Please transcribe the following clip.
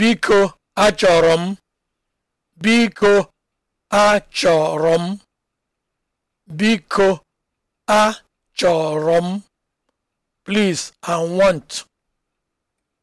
Biko achọrọ m, biko achọrọ m, biko achọrọ m, please I want